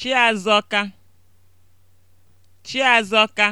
Chiazọka Chiazọka